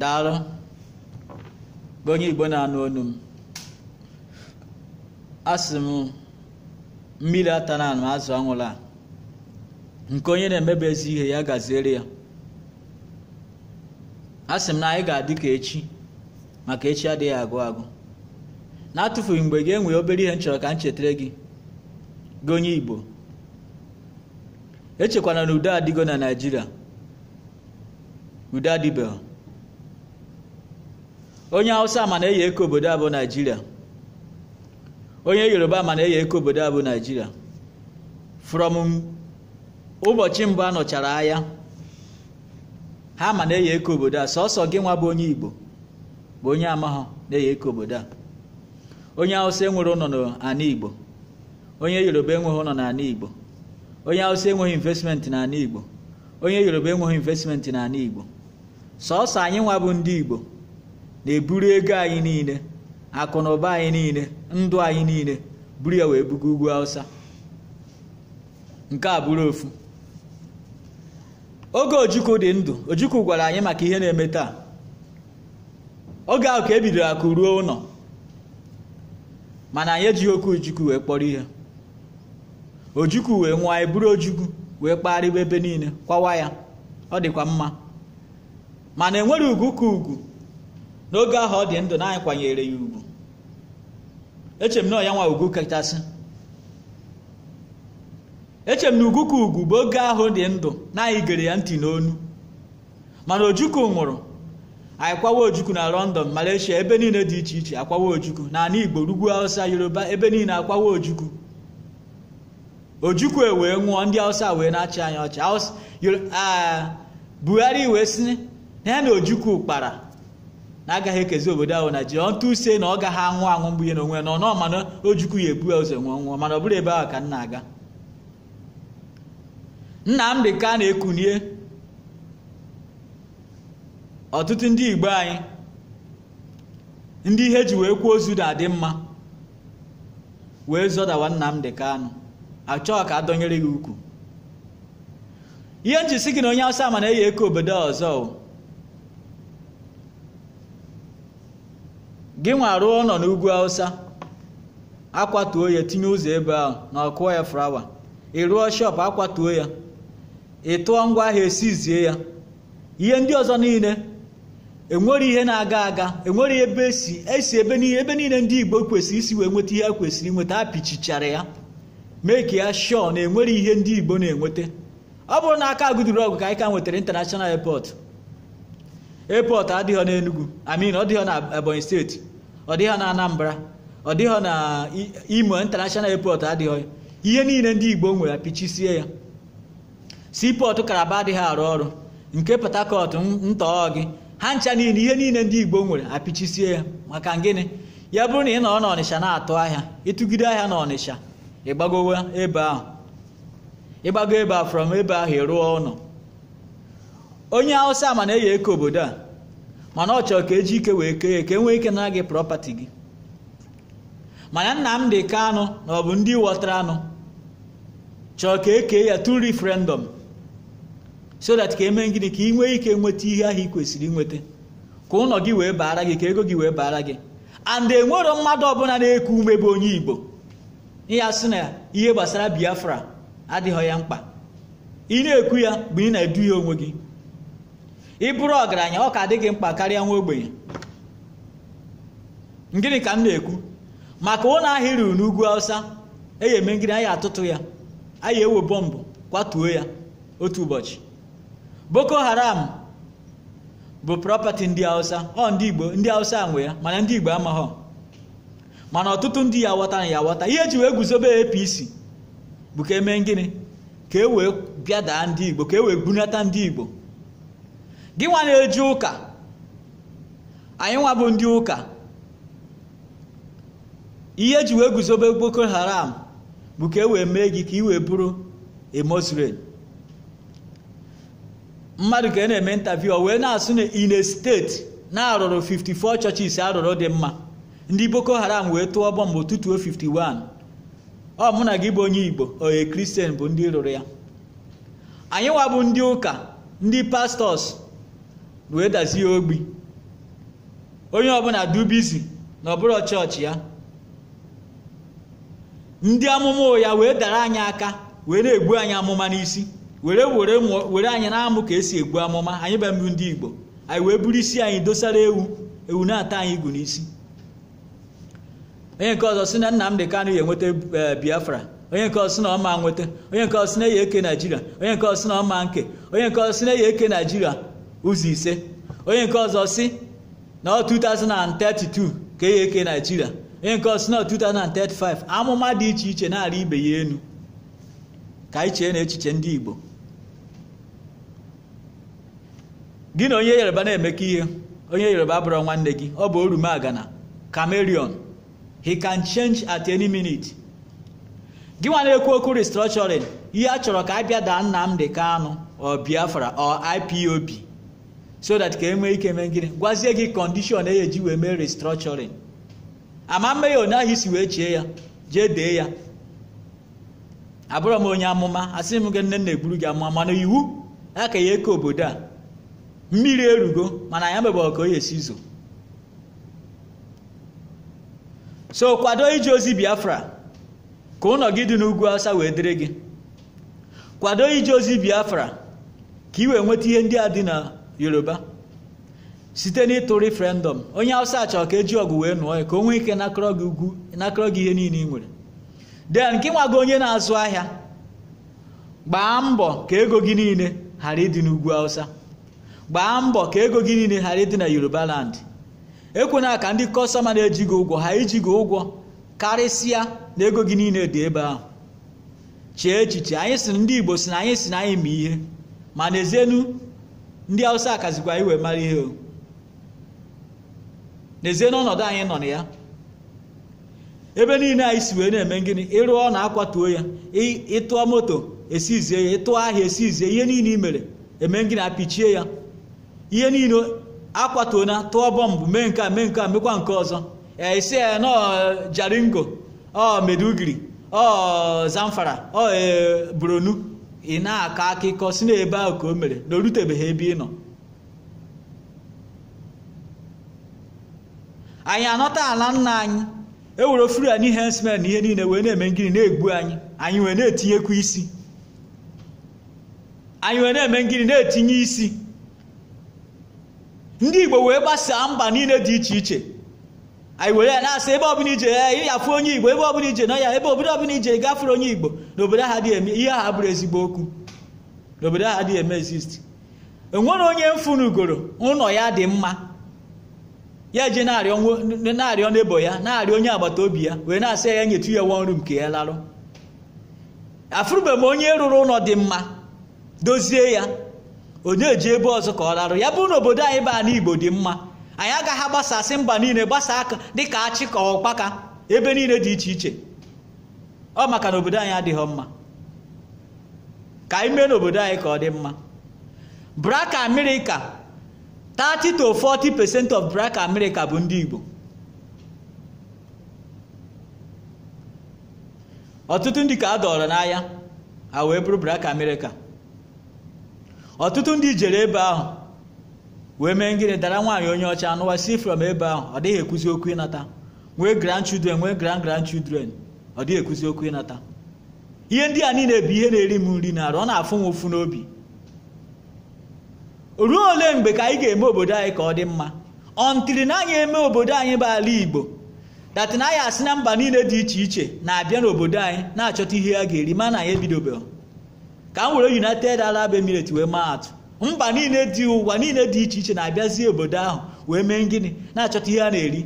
daalụ bụ onye igbo na-anụ onu m asị m mmiri ata na anụ azụ anwụla nke onye na-emebe ezi ihe ya gaziere ya asị m na anyị ga-adị ka echi maka echi adịghị agụ agụ na-atụfughị mgbe gị enwee obere ihe m chọrọ ka m chetara gị gị igbo echekwana na udo adịgo na naijiria udo adịbeghị onye hausa ma na-eyi eke obodo a bụ naijiria onye yoruba ma na-eyi eko obodo a naijiria from ụbọchị mbụ anọchara nọchara ha ma na-eyi eke obodo a sọsọ gị nwa bụ onye igbo bụ onye amaghọ na-eyi eke obodo a onye hausa enwere ụlọ n'ala igbo onye yoruba enweghị ụlọ n'ala igbo onye hausa enweghị investmenti n'ala igbo onye yoruba enweghị investmenti n'ala igbo sọsọ anyị nwa bụ ndị igbo na-eburu ego anyị niile akụ na ụba anyị niile ndụ anyị niile buru ya wee buga ugwu awụsa nke a bụrụ ofu oge ojukwu dị ndụ ojukwu gwara anyị maka ihe na-eme taa oge ahụ ka e bidoro akụ ruo ụlọ mana anyị ejighị okwu ojukwu wee kpọrọ ihe ojukwu wee nwụọ anyị e buru ojukwu wee kpagharịwa ebe niile kwawa ya ọ dịkwa mma mana enwere ugwu ka ugwu n'oge ahụ ọ dị ndụ na anyị kwanyere ya ugwu echem na ya nwa ugwu kachasị echem na ugwu ka ugwu bụ oge ahụ dị ndụ na anyị gere ya ntị n'onu mana ojukwu nwụrụ anyị kwawa ojukwu na london malaysia ebe niile dị iche iche akwawa ojukwu na ana igbo rugwu hausa yoruba ebe niile akwawa ojukwu ojukwu e wee nwụọ ndị hausa wee na-achị anyị ọchị ah, buhari wee sị na ya na ojukwu kpara na agaghị ekezi obodo ahụ na ji ọntụ use na ọ gaghị anwụ anwụ mgbe ihe na onwe nọ nọ mana o jukwu ya ebu ya ụzọ nwụọ nwụọ mana ọ bụrụ ebe ahụ ka m na-aga Nnamdị ka a na-ekunie ọtụtụ ndị Igbo anyị ndị ihe ji wee kwuo ozu na-adị mma wee zọdawa Nnamdị Kanụ achọghị ka a dọnyere gị ukwu ihe nji si gị na onye Awụsa ma na-eyi eke obodo ọzọ gị nwa rụọ nọ n'ugwu hausa akwatuo ya tinye ụzọ ebe ahụ na ọkụọ ya flawa ị rụọ shọp akwatuo ya ị tụọ ngwa ahịa esizie ya ihe ndị ọzọ niile enwere ihe na-aga aga enwere ebe esi esi ebe niile ebe niile ndị igbo kwesịrị isi wee nweta ihe a kwesịrị nweta a pichichara ya meki ya shọọ na enwere ihe ndị igbo na-enweta ọ bụrụ na aka agụduru ọgụ ka anyị ka nwetara international airport airport adịghị n'enugwu amin ọ dịghị na ebonyi steeti ọ dịghị na Anambra ọ dịghọ na Imo international airport adịghị ihe niile ndị Igbo nwere apichisie ya sipọtụ Kalaba adịghị arụ ọrụ nke Port Harcourt ntọọ gị ha ncha niile ihe niile ndị Igbo nwere apịchisie ya maka gịnị ya bụrụ na ị nọrọ n'Ọnịsha na-atụ ahịa ịtụgide ahịa n'Ọnịsha ịgbagowa ebe ahụ ịgbago ebe a from ebe ahụ ịrụọ ụlọ onye Hausa ma na-eyi eke obodo a mana ọ chọrọ ka eji ike wee kee ka enwee ike na gị prọpati gị mana ka anụ na ọ bụ ndị wọtara anụ chọrọ ka e kee ya through referendum so that ka emee gịnị ka ị nwee ike nweta ihe ahụ ị kwesịrị nweta ka ụlọ gị wee baara gị ka ego gị wee baara gị and enwero mmadụ ọbụla na-eku ume bụ onye Igbo ya sị na ihe gbasara Biafra adịghị ya mkpa ị na-ekwu ya bụ ị na-edu ya onwe gị ị bụrụ ọgaranya ọ ka dị gị mkpa karịa nwa ogbenye ngịnị ka m na-ekwu maka ụlọ ahịa ruru n'ugwu awụsa eyi eme ngịnị anyị atụtụ ya anyị ewe bọmbụ kwatuo ya otu ụbọchị boko haram bụ prọpati ndị awụsa ọ ndị igbo ndị awụsa nwe ya mana ndị igbo amaghọ mana ọtụtụ ndị ya aghọta na ya aghọta ihe eji wee guzobe apc bụ ka eme gịnị ka e wee ndị igbo ka e wee bunata ndị igbo gị nwa na-eji ụka anyị nwa bụ ndị ụka ihe eji wee guzobe Boko Haram bụ ka e wee mee gị ka ị wee bụrụ a mmadụ ka ị na-eme ntavi o wee na-asụ na ine steeti na-arụrụ 54 chọchis arụrụ dị mma ndị Boko Haram wee tụọ bọmbụ tutuo 51 ọ mụ na gị bụ onye Igbo onye kristian bụ ndị rụrụ ya anyị nwa bụ ndị ụka ndị pastọs wee dazie ogbi onye ọbụla dubizi na ọbụrụ chọọchị ya ndị amụma ụya wee dara anyị aka wee na-egbu anyị amụma n'isi were were were anyị na-amụ ka esi egbu amụma anyị be mbụ ndị Igbo anyị wee buru isi anyị dosara ewu ewu na-ata anyị igu n'isi onye nke ọzọ si na Nnamdi Kanu ya enweta e, Biafra onye nke ọzọ si na ọma nweta onye nke ọzọ si na ya eke Naijiria onye nke ọzọ si na ọma nke onye nke ọzọ si na ya eke Naijiria ụzọ ise onye nke ọzọ si na 2032 ka ihe eke naijiria onye nke ọzọ si na 2035 amụma dị iche iche na-arị ibe ya enu ka anyị chee na echiche ndị igbo gị na onye yoruba na emeka ihe onye yoruba bụrụ nwanne gị ọ bụ orumagana chameleon he can change at any minute gị nwa na-ekwu okwu restructuring ihe a chọrọ ka a bịa daa Nnamdi Kanu ọ Biafra ọ IPOB so that ka enwee ike mee gịnị gwazie gị kọndishọn eji wee mee restructuring ama mmehie onye ahụ isi wee chie ya jee dee ya abụrọ m onye amụma asị m gị nne nna egburu gị amụma mana iwu ya ka ya eke obodo a mmiri erugo mana ya mebe ka o esi zo so kwado ije ozi biafra ka ụlọ gị dị n'ugwu awụsa wee dịrị gị kwado ije ozi biafra ka ị wee nweta ihe ndị a dị na yoruba site n'ịtụ refrendọm onye awụsa chọrọ ka eji ọgụ wee nụọ ya ka o nwee ike nakọrọ gị ugwu nakọrọ gị ihe niile ị nwere den ka nwa gị onye na-azụ ahịa gbaa mbọ ka ego gị niile ghara ịdị n'ugwu awụsa gbaa mbọ ka ego gị niile ghara ịdị na yoruba land ekwena ka ndị kọstọma na-eji gị ụgwọ ha iji gị ụgwọ karịsịa na ego gị niile dị ebe ahụ chee echiche anyị sị ndị igbo si na anyị si na anyị ma ihe ma n'ezienu ndị hausa kazikwa iwe mara ihe o n'ezie n'ọnọdụ anyị nọ na ya ebe niile anyị si wee na-eme gịnị ịrụọ na akwatuo ya ịtụọ moto esizie ya ịtụọ ahịa esizie ihe niile i mere eme gịnị apichie ya ihe niile akwatuo na tụọ bọmbụ mee nke a mee nke a mekwa nke ọzọ esi ya nọ jaringo ọ ọ zamfara ọ e, buronu ị na-akọ akụkọ si n'ebe ahụ ka o mere na o rutebeghị ebe ị nọ anyị anọta ala nna anyị ewere ofuru n'ihe hensmen na ihe niile wee na-eme ngiri na-egbu anyị anyị wee na-etinyekwa isi anyị wee na-eme ngiri na-etinye isi ndị Igbo wee gbasaa mba niile dị iche iche anyị were ya na-asị ebe ọbụla ije eh, ya onye igbo ebe ọbụla ije nọ ya ebe obodo ọbụla ije gafere onye igbo n'obodo aha dị eme ihe aha bụrụ ezigbo okwu obodo aha dị eme exist enwere onye mfunugoro ụlọ ya dị mma ya eji na-arịọ n'ebo ya na-arịọ onye agbata obi ya wee na-asị ya eh, nyetu ya nwa nru nke ya larụ afụrụbeghị m onye rụrụ ụlọ dị mma dozie ya onye eji ebe ọzọ ka ọ larụ ya bụrụ na obodo anyị baa n'Igbo igbo dị mma anyị agaghị agbasasị mba niile gbasaa aka dịka achị ọkpaka ebe niile dị iche iche ọ maka na obodo anyị adịghị mma ka anyị mee n'obodo anyị ka ọ dị mma braka amerịka 30 to 40 percent of braka amerịka bụ ndị igbo ọtụtụ ndị ka a dọrọ n'anya ha wee bụrụ braka amerika ọtụtụ ndị jere ebe ahụ wee mee ngịrị dara nwaanyị onye ọcha anụwa si from ebe ahụ ọ dịghị ekwuzi okwu ịnata nwee grandchildren nwee grand children ọ dịghị ekwuzi okwu ịnata ihe ndị a niile bụ ihe na-eri m nri na arụ ọ na-afụ m ụfụ n'obi ruo ole mgbe ka anyị ga-eme obodo anyị ka ọ dị mma ọntiri na anyị eme obodo anyị bụ ala igbo na anyị asị na mba niile dị iche iche na-abịa n'obodo anyị na-achọta ihe a ga-eri mana anyị ebidobeghị ka m were united arab emirates wee maa atụ mba niile dị ụwa niile dị iche iche na-abịazi obodo ahụ wee mee ngịnị na-achọta ihe a na-eri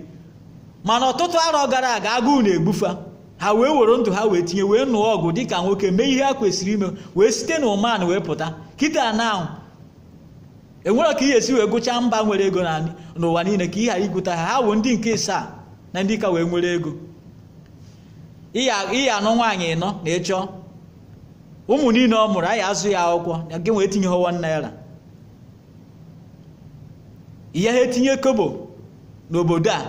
mana ọtụtụ arọ gara aga agụụ na-egbufa ha wee were ndụ ha wee tinye wee nụọ ọgụ dị ka nwoke mee ihe ha kwesịrị ime wee site na ụman wee pụta kịta na ahụ enwere ka ihe esi wee gụchaa mba nwere ego n'ụwa niile ka ị ghara ha ha wụ ndị nke ịsaa na ndị ka wee nwere ego ihe anọ nwaanyị ịnọ na ịchọ ụmụ niile ọ mụrụ anyị azụ ya akwụkwọ gị wee tinye họwa naira ihe ha etinye kobo n'obodo a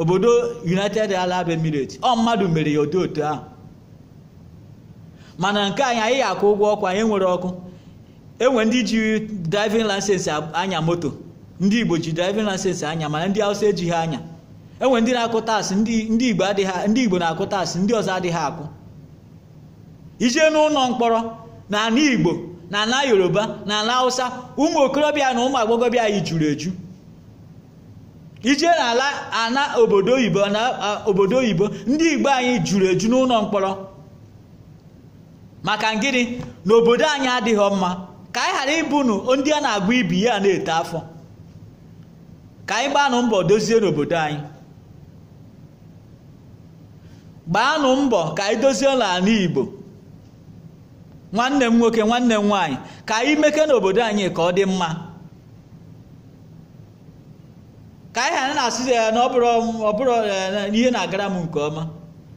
obodo united arab emirates ọ mmadụ mere ya otu otu ahụ mana nke anyị anyị akwụ ụgwọ ọkụ anyị nwere ọkụ enwe ndị ji driving license anya moto ndị igbo ji driving license anya mana ndị hausa ejighị anya enwe ndị na-akụ taasị ndị igbo adịghị ndị igbo na-akụ taasị ndị ọzọ adịghị akụ ijee n'ụlọ mkpọrọ na ala igbo na ala yoruba na ala hausa ụmụ okorobịa na ụmụ agbọghọbịa anyị juru eju ije n'ala ana obodo oyibo na obodo oyibo ndị igbo anyị juru eju n'ụlọ mkpọrọ maka ngịnị na obodo anyị adịghị mma ka anyị ghara ịbụnụ ndị a na agba ibi ya na-ete afọ ka anyị gbaanụ mbọ dozie n'obodo anyị gbaanụ mbọ ka anyị dozie n'ala igbo nwanne m nwoke nwanne m nwaanyị ka anyị meke n'obodo anyị ka ọ dị mma ka anyị ha na-asị ya na ọbụrụ eh, ihe na-agara m nke ọma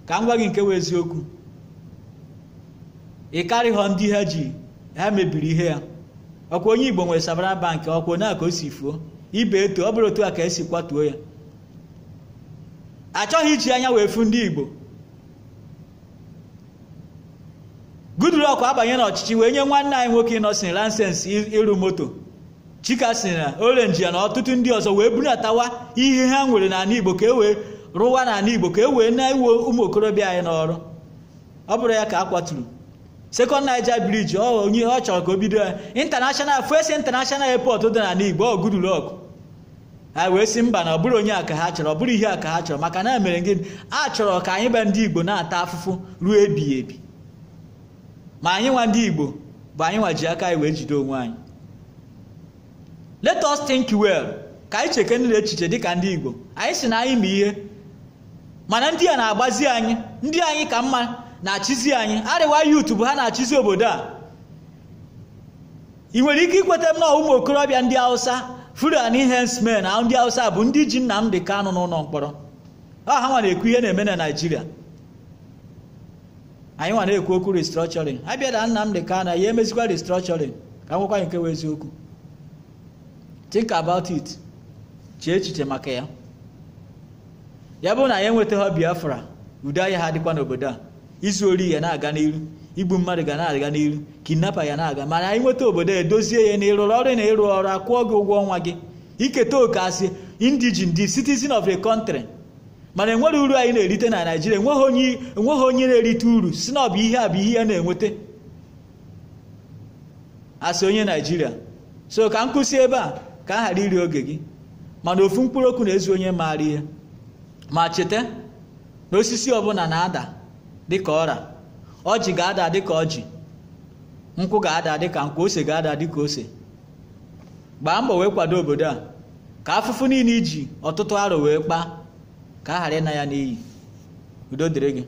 ka m gwa gị nke wee eziokwu ị karịghọ ndị ha ji ha mebiri ihe ya ọkwa onye igbo nwere sabara bank ọkwa na ka o si fuo ibe eto ọ bụrụ otu a ka esi kwatuo ya achọghị iji anya wee fu ndị igbo Goodluck abanye n'ọchịchị wee nye nwanne anyị nwoke Innocent lansens ịrụ moto chika si na orenji ya na ọtụtụ ndị ọzọ wee bunatawa ihe ha nwere n'ala igbo ka e wee rụwa n'ala igbo ka e wee na-ewe ụmụ okorobịa anyị n'ọrụ ọ bụrụ ya ka a kwaturu sekọnd naija briji ọ onye ọ chọrọ ka o bido ya intanashonal fes intanashonal epọt dị n'ala igbo ọ gudulok ha wee si mba na ọ bụrụ onye a ka ha chọrọ ọ bụrụ ihe a ka ha chọrọ maka na e mere gịnị a chọrọ ka anyị gba ndị igbo na-ata afụfụ ruo ebighị ebi ma anyị nwa ndị igbo bụ anyị nwa ji aka anyị wee jide onwe anyị let us think well ka anyị chekenere echiche dịka ndị igbo anyị si na anyị ma ihe mana ndị a na-agbazi anyị ndị anyị ka mma na-achịzi anyị arịwa yutu bụ ha na-achịzi obodo a ị nwere ike ikweta m na ụmụ okorobịa ndị hausa furan hensmen na ndị hausa bụ ndị ji Nnamdi Kanu n'ụlọ mkpọrọ ha nwa na-ekwu ihe na-eme na naijiria anyị nwa na-ekwu okwu restructuring abịada Nnamdi Kano ya emezikwa restructuring ka m nwekwa nke eziokwu think about it chee echiche maka ya ya bụrụ na ya enwetaghị biafra udo ahịa ha dịkwa n'obodo a izu ori ya na-aga n'iru igbu mmadụ ga na-aga n'iru kidnapa ya na-aga mana anyị nweta obodo a edozie ya na ịrụrụ ọrụ na ịrụ ọrụ akwụọ gị ụgwọ ọnwa gị iketa oke asị indigen di citizen of the country mana enwere uru anyị na-erite na naijiria enweghị onye na-erite uru si na ọ bụ ihe a bụ ihe ya na-enweta asị onye naijiria so ka m kwụsị ebe a ka a ghara iri oge gị mana ofu mkpụrụ okwu na-ezu onye maara ihe ma cheta na osisi ọbụla na-ada dịka ọra ọjị ga-ada dịka ọjị nkwụ ga-ada dịka nkwụ ose ga-ada dị dịka ose gbaa mbọ wee kwado obodo a ka afụfụ niile iji ọtụtụ arọ wee kpaa ka a ghara ịna ya n'iyi udo dịrị gị